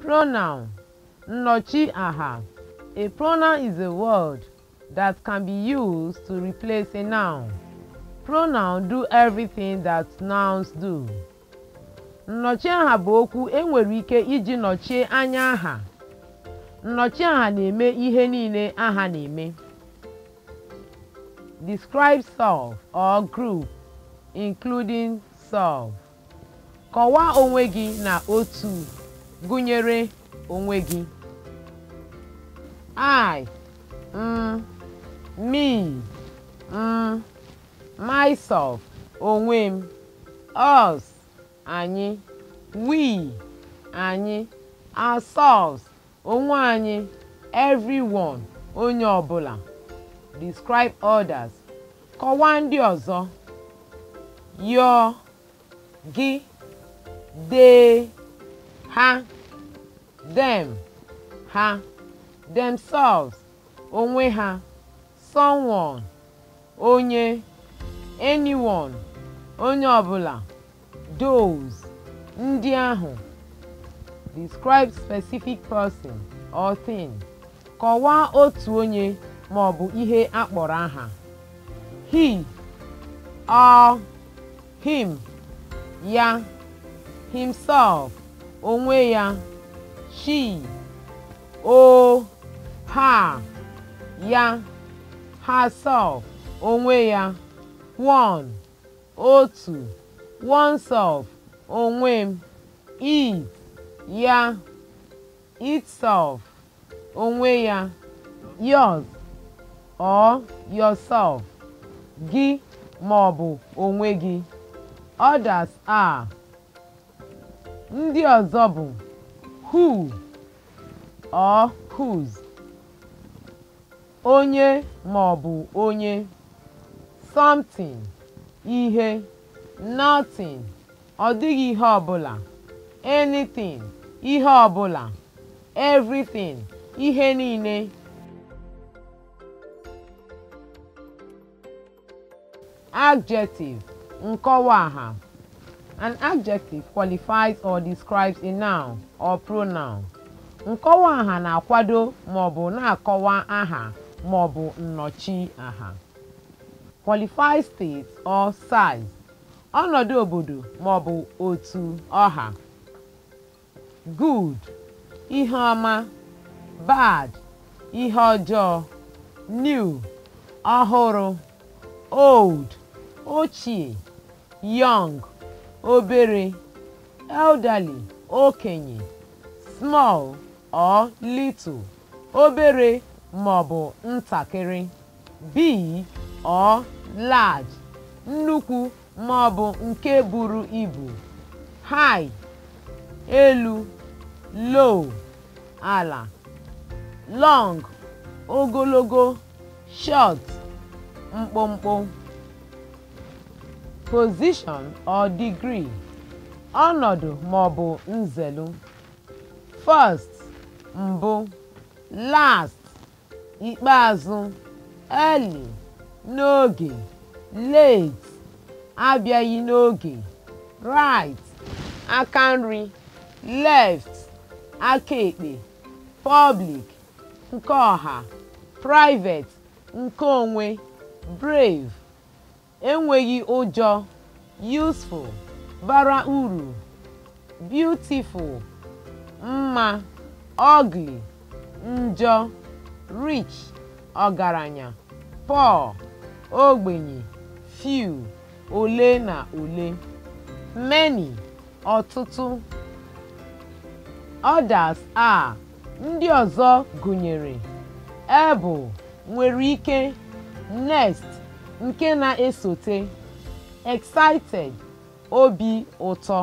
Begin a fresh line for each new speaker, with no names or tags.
Pronoun aha A pronoun is a word that can be used to replace a noun. Pronoun do everything that nouns do. Nnọchi aha bụ okwu enwere ike iji nọchie anya aha. Nnọchi aha na-eme ihe niile aha na-eme. Describe self or group, including self. Kọwaa onwe gị na otu. gụnyere onwe gị I, um, me, um, myself, onwe m, us, anyị, we, anyị, ourselves, onwe anyị, everyone, onye ọbụla. Describe others. Kọwaa ndị ọzọ. Your, gị, they, ha. them ha themselves onwe ha someone onye anyone onye ọbụla those ndị ahụ describe specific person or thing kọwaa otu onye ma ọ bụ ihe akpọrọ kpọrọ aha he or him ya himself onwe ya she o ha ya herself onwe ya one otu oneself onwe m it ya itself onwe ya yours or yourself gị ma ọ bụ onwe gị others are ndị ọzọ bụ who or whose onye ma ọ bụ onye something ihe nothing ọ dịghị ihe ọ bụla; anything ihe ọ bụla; everything ihe niile adjective nkọwa aha An adjective qualifies or describes a noun or pronoun. Nkọwa aha na-akwado ma na-akọwa aha ma ọ bụ nnọchi aha. Qualifies state or size. Ọnọdụ obodo maọbụ otu ọha. Good, ihe ọma. Bad, ihe ọjọọ. New, ọhụrụ. Old, ochie. Young, obere elderly okenye small or little obere maọbụ ntakịrị big or large nnukwu maọbụ nke buru ibu high elu low ala long ogologo short mkpụmkpụ position or degree ọnọdụ maọbụ nzelu first mbụ last ikpeazụ early n'oge late abịaghị n'oge right aka nri left aka ekpe public nke ọha private nke onwe brave enweghị ụjọ useful bara uru beautiful mma ugly njọ rich ọgaranya poor ogbenye few ole na ole many ọtụtụ others a ndị ọzọ gụnyere able nwere ike next nke na-esote excited obi ụtọ